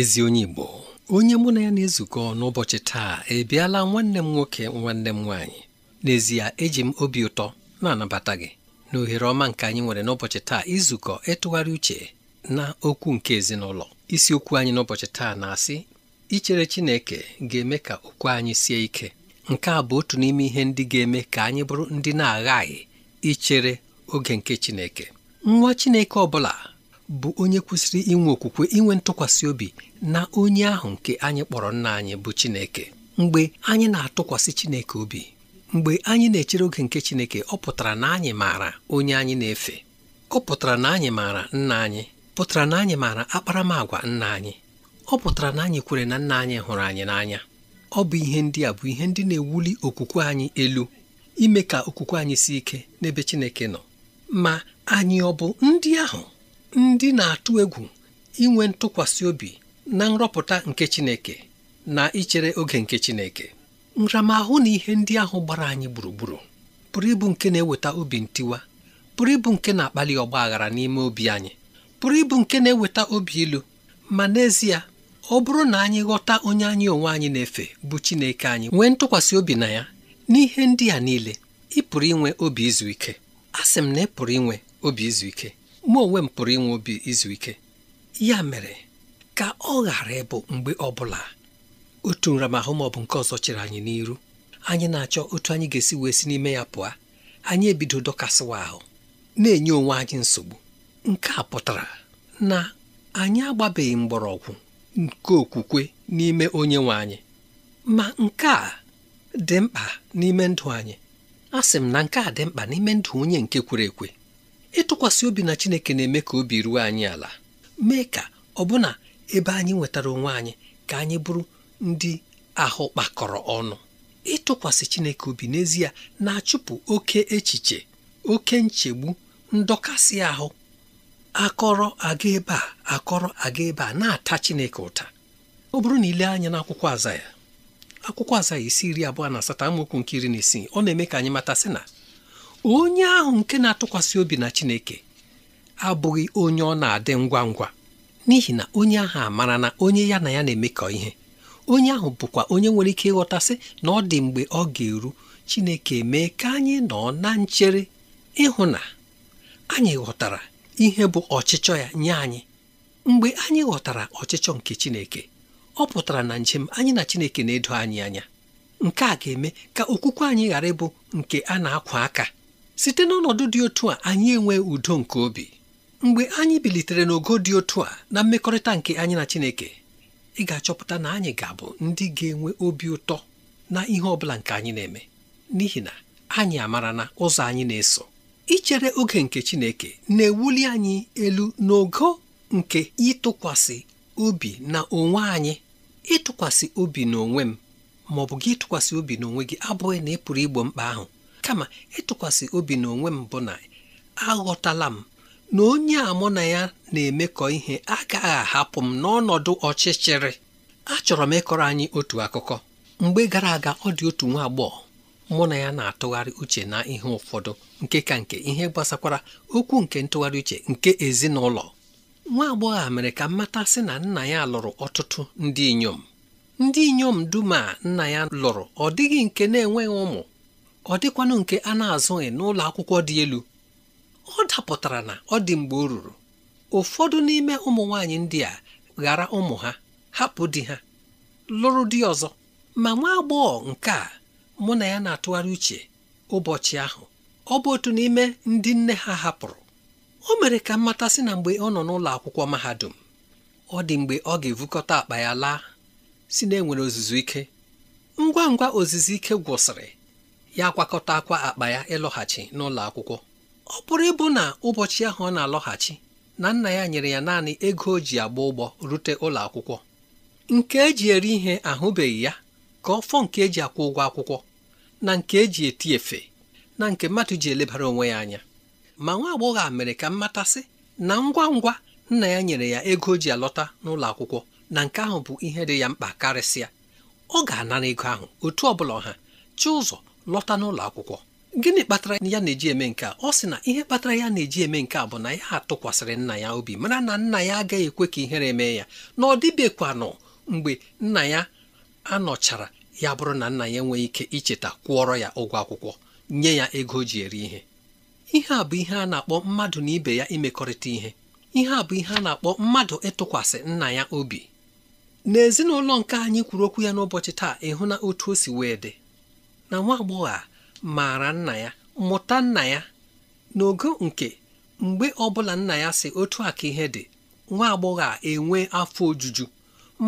ezi onye Igbo onye mụ na ya na-ezukọ n'ụbọchị taa ebiala nwanne m nwoke nwanne m nwaanyị n'ezie eji m obi ụtọ na-anabata gị n'ohere ọma nke anyị nwere n'ụbọchị taa izukọ ịtụgharị uche na okwu nke ezinụlọ isiokwu anyị n'ụbọchị taa na-asị ichere Chineke ga-eme ka okwu anyị sie ike nke a bụ otu n'ime ihe ndị ga-eme ka anyị bụrụ ndị na-aghaghị ichere oge nke Chineke nwa Chineke ọ bụla bụ onye kwesịrị inwe okwukwe inwe ntụkwasị obi na onye ahụ nke anyị kpọrọ nna anyị bụ Chineke mgbe anyị na-atụkwasị Chineke obi mgbe anyị na-echere oge nke Chineke ọ pụtara na anyị maara onye anyị na-efe ọ pụtara na anyị maara nna anyị pụtara na anyị maara akparamagwa nna anyị ọ pụtara na anyị kwere na nna anyị hụrụ anyị n'anya ọ bụ ihe ndị a bụ ihe ndị na-ewuli okwukwe anyị elu ime ka okwukwe anyị si ike n'ebe Chineke nọ ma anyị ọ bụ ndị ahụ ndị na-atụ egwu inwe ntụkwasị obi na nrọpụta nke Chineke na ichere oge nke Chineke nramahụ na ihe ndị ahụ gbara anyị gburugburu pụrụ ịbụ nke na-eweta obi ntiwa pụrụ ịbụ nke na-akpali ọgba aghara n'ime obi anyị pụrụ ịbụ nke na-eweta obi ilu ma n'ezie ọ bụrụ na anyị ghọta onye anyị onwe anyị na-efe bụ Chineke anyị nwee ntụkwasị obi na ya n'ihe ndị a niile ị pụrụ inwe obi izu ike a sị m na ị pụrụ inwe obi izu ike mụ onwe m pụrụ inwe obi izu ike ya mere ka ọ ghara ịbụ mgbe ọ bụla otu nramahụ ma bụ nke ọzọ chere anyị n'iru anyị na-achọ otu anyị ga-esi wee si n'ime ya pụọ anyị ebido dọkasịwa ahụ na-enye onwe anyị nsogbu nke a pụtara na anyị agbabeghị mgbọrọgwụ nke okwukwe n'ime onye nwe anyị ma nke a dị mkpa n'ime ndụ anyị a sị m na nke a dị mkpa n'ime ndụ onye nke kwere ekwe ịtụkwasị obi na Chineke na-eme ka obi ruo anyị ala mee ka ọbụna ebe anyị nwetara onwe anyị ka anyị bụrụ ndị ahụ kpakọrọ ọnụ ịtụkwasị Chineke obi n'ezie na-achụpụ oke echiche oke nchegbu ndọkasị ahụ akọrọ aga ebe a akọrọ aga ebe a na-ata Chineke ụta ọ bụrụ na ile anya n'akwụkwọ aza ya akwụkwọ aza ya isi iri abụọ na asatọ amaokwu nke iri na isii ọ na-eme ka anyị mata sị na onye ahụ nke na-atụkwasị obi na Chineke abụghị onye ọ na-adị ngwa ngwa n'ihi na onye ahụ amara na onye ya na ya na-emekọ ihe onye ahụ bụkwa onye nwere ike ịghọtasị na ọ dị mgbe ọ ga-eru Chineke mee ka anyị nọ na nchere ịhụ na anyị ghọtara ihe bụ ọchịchọ ya nye anyị mgbe anyị ghọtara ọchịchọ nke Chineke ọ pụtara na njem anyị na Chineke na-edo anyị anya nke a ga-eme ka okwukwe anyị ghara ịbụ nke a na-akwa aka site n'ọnọdụ dị otu a anyị enwe udo nke obi mgbe anyị bilitere n'ogo dị otu a na mmekọrịta nke anyị na Chineke ị ga-achọpụta na anyị ga-abụ ndị ga-enwe obi ụtọ na ihe ọ bụla nke anyị na-eme n'ihi na anyị amara na ụzọ anyị na-eso ichere oge nke Chineke na-ewuli anyị elu n'ogo nke ịtụkwasị obi na onwe anyị ịtụkwasị obi na onwe m ma ọ bụ gị ịtụkwasị obi onwe gị abụghị na ị pụrụ igbo mkpa ahụ kama ịtụkwasị obi na onwe m bụ na aghọtala m na onye a mụ na ya na-emekọ ihe agaghị ahapụ m n'ọnọdụ ọchịchịrị achọrọ m ịkọrọ anyị otu akụkọ mgbe gara aga ọ dị otu nwa agbọghọ mụ na ya na-atụgharị uche na ihe ụfọdụ nke ka nke ihe gbasakwara okwu nke ntụgharị uche nke ezinụlọ nwa agbọghọ a mere ka mmata sị na nna ya lụrụ ọtụtụ ndị inyom ndị inyom dum a nna ya lụrụ ọ dịghị nke na-enweghị ụmụ ọ dịkwanụ nke a na-azụghị n'ụlọ akwụkwọ dị elu ọ dapụtara na ọ dị mgbe o ruru ụfọdụ n'ime ụmụ nwaanyị ndị a ghara ụmụ ha hapụ di ha lụrụ di ọzọ ma nwa agbọghọ nke a mụ na ya na-atụgharị uche ụbọchị ahụ ọ bụ otu n'ime ndị nne ha hapụrụ o mere ka mmata sị na mgbe ọ nọ n'ụlọ akwụkwọ mahadum ọ dị mgbe ọ ga-evukọta akpa ya laa si na enwere ozuzu ike ngwa ngwa ozuzu ike gwụsịrị ya gwakọtakwa akwa akpa ya ịlọghachi n'ụlọ akwụkwọ ọ pụrụ ịbụ na ụbọchị ahụ ọ na-alọghachi na nna ya nyere ya naanị ego o ji agba ụgbọ rute ụlọ akwụkwọ nke eji eri ihe ahụbeghị ya ka ọ fọ nke eji akwụ ụgwọ akwụkwọ na nke eji eti efe na nke mmadụ ji elebara onwe ya anya ma nwa agbọghọ a mere ka mmatasị na ngwa ngwa nna ya nyere ya ego o ji alọta n'ụlọ akwụkwọ na nke ahụ bụ ihe dị ya mkpa karịsịa ọ ga-anara ego ahụ otu ọ bụla ọha chi ụzọ lọta n'ụlọ akwụkwọ gịnị kpatara ya na-eji eme nke a ọ sị na ihe kpatara ya na-eji eme nke a bụ na ya atụkwasịrị nna ya obi mara na nna ya agaghị ekwe ka ihere mee ya na ọ dịbekwanụ mgbe nna ya anọchara ya bụrụ na nna ya enweghị ike icheta kwụọrọ ya ụgwọ akwụkwọ nye ya ego o ji eri ihe ihe a bụ ihe a na-akpọ mmadụ na ibe ya imekọrịta ihe ihe a bụ ihe a na-akpọ mmadụ ịtụkwasị nna ya obi n'ezinụlọ nke anyị kwuru okwu ya n'ụbọchị taa ịhụ na otu o si wee dị na nwa agbọghọ a maara nna ya mụta nna ya n'ogo nke mgbe ọbụla nna ya si otu a ka ihe dị nwa agbọghọ a enwe afọ ojuju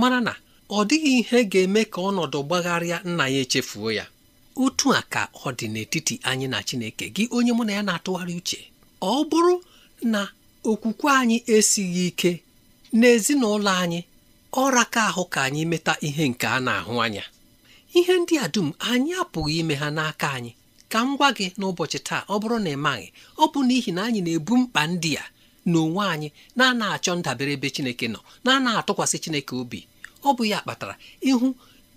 mara na ọ dịghị ihe ga-eme ka ọnọdụ gbagharịa nna ya echefuo ya otu a ka ọ dị n'etiti anyị na Chineke gị onye mụ na ya na-atụgharị uche ọ bụrụ na okwukwe anyị esighị ike n'ezinụlọ anyị ọra ka ahụ ka anyị meta ihe nke a na-ahụ anya ihe ndị a dum anyị apụghị ime ha n'aka anyị ka m gwa gị n'ụbọchị taa ọ bụrụ na ị maghị ọ bụ n'ihi na anyị na-ebu mkpa ndị a n'onwe anyị na-ana achọ ndabere ebe Chineke nọ na-ana atụkwasị Chineke obi ọ bụ ya kpatara ịhụ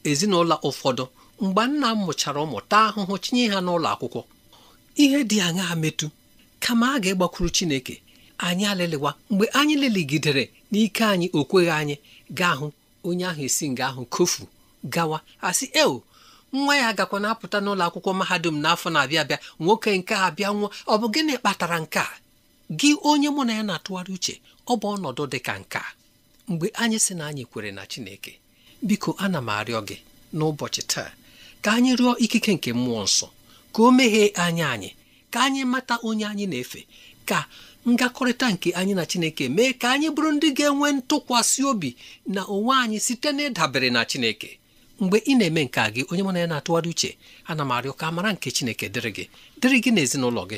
ezinụlọ ụfọdụ mgbe nna m mụchara ụmụta ahụhụ chinye ha n'ụlọ akwụkwọ ihe dị aṅaa metụ kama a ga-egbakwuru Chineke anyị alịlịwa mgbe anyị leligidere n'ike anyị o kweghị anyị gaa hụ onye ahụ esi nga ahụ kofu gawa asị eo nwa ya gakwa na-apụta n'ụlọ akwụkwọ mahadum n'afọ na-abịa abịa nwoke nke a bịa nwa ọ bụ gịnị kpatara nke a gị onye mụ na ya na-atụgharị uche ọ bụ ọnọdụ dị ka nke a mgbe anyị sị na anyị kwere na Chineke biko ana m arịọ gị n'ụbọchị taa ka anyị rịọ ikike nke mmụọ nsọ ka o meghee anya anyị ka anyị mata onye anyị na-efe ka ngakọrịta nke anyị na Chineke mee ka anyị bụrụ ndị ga-enwe ntụkwasị obi na onwe anyị site n'ịdabere na Chineke mgbe ị na-eme nke a gị onye mụ na ya na-atụgharị uche ana m arịọ ka mara nke Chineke dịrị gị dịrị gị na ezinụlọ gị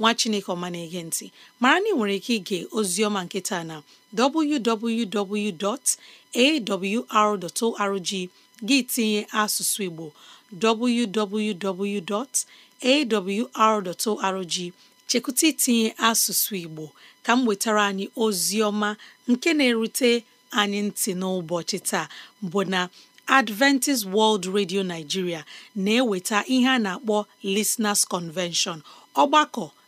nwa chineke ọma na-ege ntị mara na ị nwere ike ige oziọma nketa na www.awr.org gị tinye asụsụ igbo www.awr.org chekwụta itinye asụsụ igbo ka m wetara anyị oziọma nke na-erute anyị ntị n'ụbọchị taa bụ na Adventist World Radio Nigeria na-eweta ihe a na-akpọ Listeners Convention ọgbakọ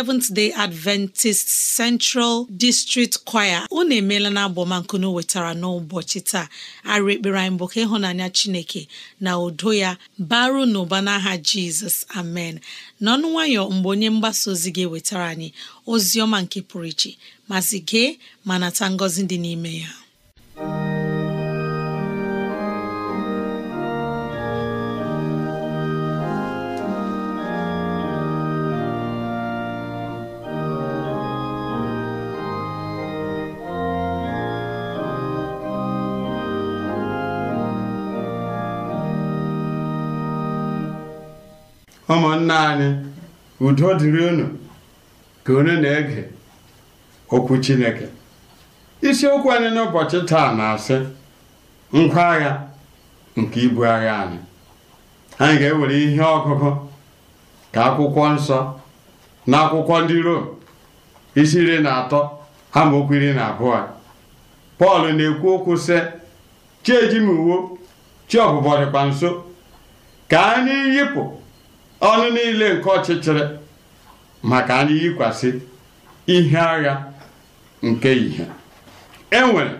Seventh Day Adventist Central District Choir unu emeela na abọmankunu wetara n'ụbọchị taa arị ekpere anyị bụ ka ịhụnanya Chineke na udo ya baru n'ụba n'aha Jizọs amen n'ọnụ nwayọ mgbe onye mgbasa ozi ga-ewetara anyị ozi ọma nke pụrụ iche masị gee ma nata ngọzi dị n'ime ya ụmụnna anyị udo dịrị unu ka onye na-ege okwu Chineke isiokwu anyị n'ụbọchị taa na-asị ngwa agha nke ibu agha anyị anyị ga-ewere ihe ọgụgụ ka akwụkwọ nsọ na akwụkwọ ndị Rom isi iri na atọ ama iri na abụọ Pọl na-ekwu okwu sị chi uwo chi ọbụbọ dịkwa nso ka anyị yipụ ọnụ niile nke ọchịchịrị maka anyị yikwasị ihe agha nke ihe e nwere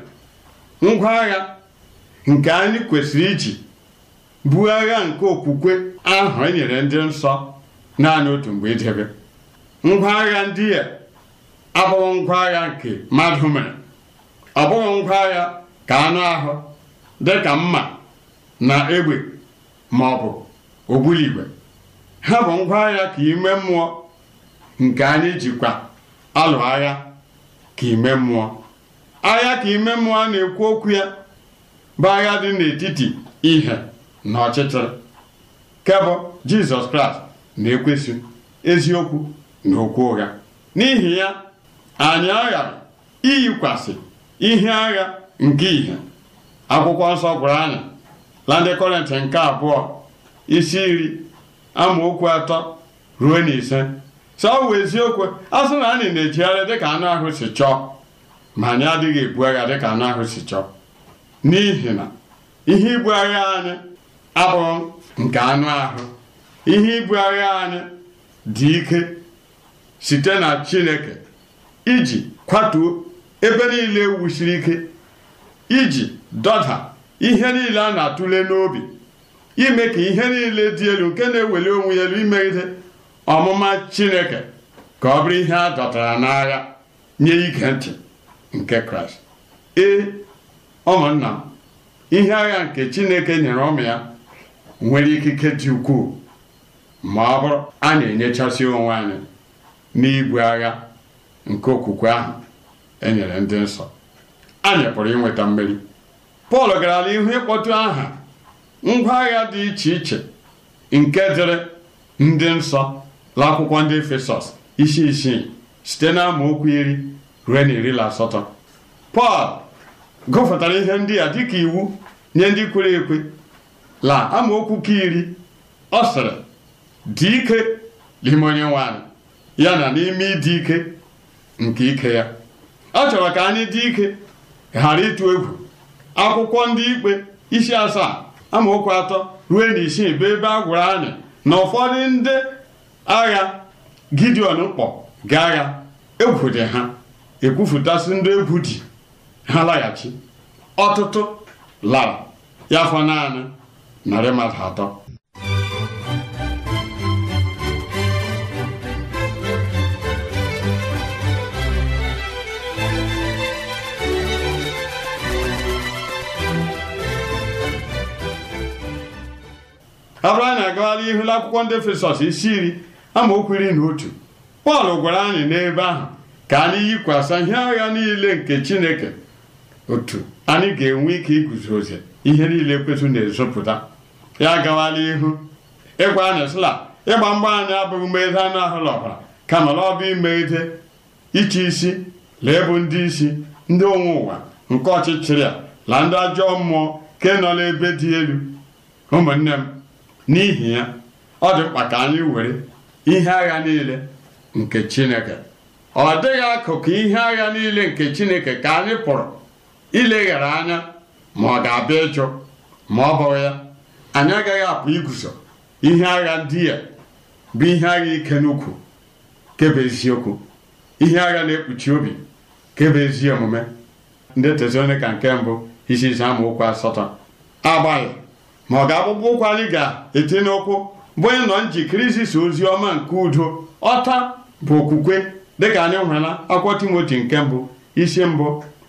ngwa agha nke anyị kwesịrị iji buo agha nke okwukwe ahụ e nyere ndị nsọ naanị otu mgbe idebe ngwa agha ndị a abụghị ngwa agha nke mmadụ mere ọ bụghị ngwa agha ka anụ ahụ dị ka mma na egbe ma ọ bụ ogbuligwe ha bụ ngwa agha ka ime mmụọ nke anyị jikwa alụ agha ka ime mmụọ agha ka ime mmụọ a na-ekwu okwu ya bụ agha dị n'etiti ihe na ọchịchịrị kebụ jizọs kraịst na-ekwesị eziokwu na okwu ụgha n'ihi ya anyị aghara iyikwasị ihe agha nke ihe akwụkwọ nsọ gwara anyị na nke abụọ isi iri amaokwu atọ ruo na ise sọ eziokwu asụ na anyị na-ejigharị dịka anụ ahụ si chọọ ma anyị adịghị ebu agha dịka anụ ahụ si chọọ n'ihi na ihe ibu agha anyị abụghị nke anụ ahụ ihe ibu agha anyị dị ike site na Chineke iji kwatuo ebe niile e wusiri ike iji dọda ihe niile a na-atụle n'obi ime ka ihe niile dị elu nke na-eweli onwe ya elu imegide ọmụma chineke ka ọ bụrụ ihe a dọtara n'agha nye ige ntị nke kraịst ee ụmụnna m ihe agha nke chineke nyere ụmụ ya nwere ikike dị ukwuu ma ọ bụrụ a na-enyechasị onwe anyị n'igwe agha nke okwukwe ahụ e nyere ndị nsọ anyị pụrụ inweta mmeri pọl gara n'ihu ịkpọtụ aha ngwa agha dị iche iche nke dịrị ndị nsọ n'akwụkwọ ndị Efesọs isi isii site na amaokwu iri ruo na iri na asatọ Pọl gụfụtara ihe ndị a dịka iwu nye ndị kwere ekwe la amaokwu ka iri ọ sịrị dị ike n'ime onye nwanyị ya na n'ime ịdị ike nke ike ya ọ chọrọ ka anyị dị ike ghara ịtụ egwu akwụkwọ ndị ikpe isi asaa amaokwu atọ ruo na isii bụ ebe a gwụrụ anyị na ụfọdụ ndị agha gideon kpọ ga agha egwu dị ha ekwufutasị ndị egwu dị ha laghachi ọtụtụ lara ya fọ naanị narị mmadụ atọ abụrụ anyị na-agagharị ihu n'akwụkwọ ndị Efesọs isi iri okwu iri na otu Pọl gwara anyị n'ebe ahụ ka anyị yikwasa ihe agha niile nke Chineke otu anyị ga-enwe ike iguzozi ihe niile kwesị na-ezopụta ya agawala ihu ịgwa anyị sịla ịgba mgba anyị abụghị mmegide anụ ahụ na ọbara kama na ọ bụ imegide iche isi lee bụ ndị isi ndị onwe ụwa nke ọchịchịrị a na ndị ajọ mmụọ nke nọ n'ebe dị elu ụmụnne m n'ihi ya ọ dị mkpa ka anyị were ihe agha niile nke Chineke ọ dịghị akụkụ ihe agha niile nke Chineke ka anyị pụrụ ileghara anya ma ọ ga-abịa ịchụ ma ọ bụghị ya anyị agaghị apụ iguzo ihe agha ndị ya bụ ihe agha ike n'ukwu kebe eziokwu ihe agha na-ekpuchi obi kebe ezi omume ndị Tesalonika nke mbụ isi ise amaokwu asatọ agbaghị ma ọ ga-akpụkpọ ụkwụ anyị ga-etinye n'ụkwụ bụ onye nọ njikere izisa ozi ọma nke udo ọta bụ okwukwe dịka anyị hụrụ na akwụkwọ timoti nke mbụ isi mbụ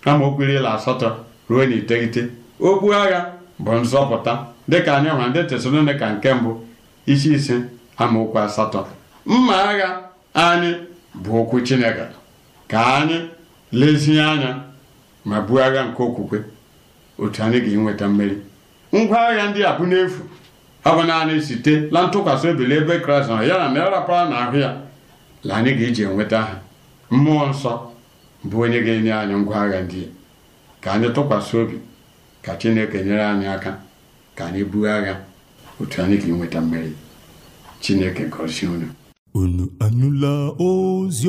amaokwu iri asatọ ruo na iteghete okpu agha bụ nzọpụta dịka anyị hụrụ ndị tesalonika nke mbụ isi ise amaokwu asatọ mma agha anyị bụ okwu chineke ka anyị lezie anya ma buo agha nke okwukwe otu anyị ga-enweta mmeri ngwa agha ndị a bụ n'efu abụ bụ naanị site na ntụkwasị obi n'ebe kraịst nọ ya na narapara na ahụ ya la anyị ga-eji enweta ha mmụọ nsọ bụ onye ga-enye anyị ngwa agha ndị ka anyị tụkwasị obi ka chineke nyere anyị aka ka anyị buo agha otu anyị ga-enweta mmeri chineke gọzie unu unu anụla ozi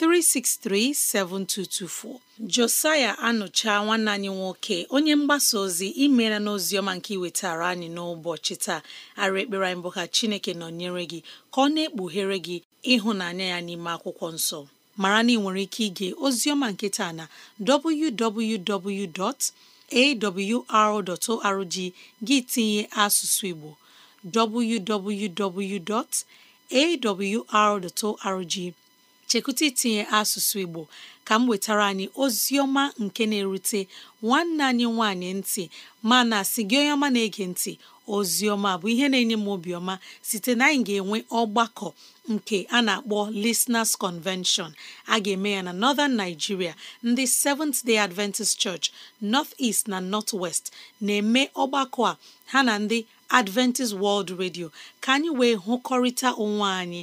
363 7224 Josaya anụcha nwanne anyị nwoke onye mgbasa ozi imela n'oziọma nke iwetara anyị n'ụbọchị taa ara ekpere anyị bụ ka Chineke nọnyere gị ka ọ na-ekpughere gị ịhụnanya ya n'ime akwụkwọ nsọ mara na ị nwere ike ige oziọma nke na www.awr.org gị tinye asụsụ Igbo www.awr.org chekwụta itinye asụsụ Igbo ka m wetara anyị ozioma nke na-erute nwanne anyị nwanyị ntị mana sị gị onye ọma na-ege ntị ozioma bụ ihe na-enye m obiọma site na anyị ga-enwe ọgbakọ nke a na-akpọ Listeners Convention a ga-eme ya na Northern Nigeria ndị Seventh Day Adventist Church North East na North West na-eme ọgbakọ a ha na ndị Adventist World Radio ka anyị wee hụkọrịta onwe anyị